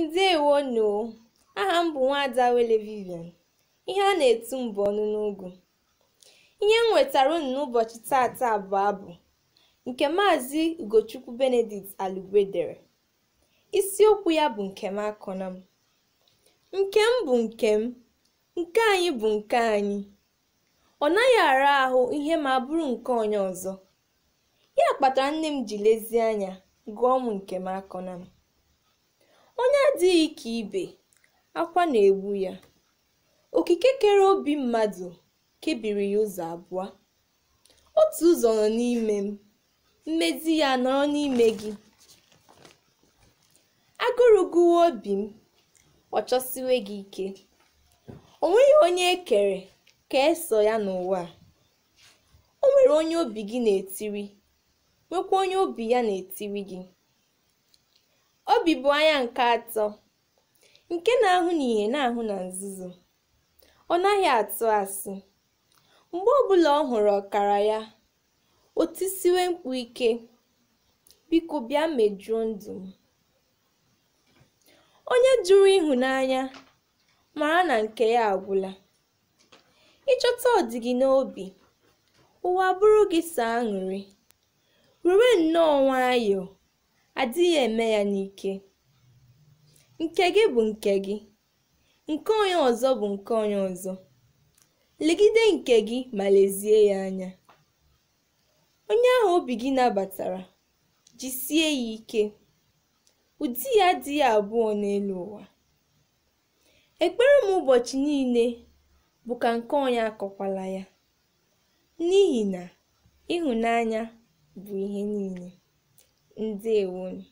anyị ndewonu aha m bụ nwaada Wele Vivian ihe a na-etu mbụ bụ ọnụ n'ugwu ihe m nwetara unu n'ụbọchị tata abụ abụ nke maazị Ugochukwu Benedict Alugwe dere isiokwu ya bụ nkem nke m nkem bụ m nke anyị bụ nke anyị ọ naghị ara ahụ ihe ma bụrụ nke onye ọzọ ya kpatara nne m ji lezie anya gụọ m nkem akọna m adịghị ike ibe akwa na-egbu ya okike kere obi mmadụ kebiri ya ụzọ abụọ otu ụzọ nọ n'ime m mmezi ya nọrọ n'ime gị agụrụ obi m ọ chọsiwe gị ike o nweghị onye e kere ka eso ya n'ụwa o nwere onye obi gị na-etiri nwekwa onye obi ya na-etiri gị Obi anya nke atọ nke na-ahụ n'ìhè na-ahụ na nzuzo, ọ naghị atụ asị. Mgbe ọbụla ọ hụrụ ọkara ya, otisiwe tisiwe mkpu ike, "Biko bịa mejuo ndụ m." Onye jụrụ ịhụnanya mara na nke ya agwụla. Ịchọta ọdịgị n'obi, ụwa bụrụ gị saa aṅụrị. Were nnọọ nwayọọ adịghị eme ya n'ike nke gị bụ nke gị nke onye ọzọ bụ nke onye ọzọ legide nke gị ma lezie ya anya onye ahụ obi gị nabatara jisie ya ike ụdị ya dị ya abụọ n'elu ụwa ekpere m ụbọchị niile bụ ka nke onye akọkwala ya n'ihi na ịhụnanya bụ ihe niile one.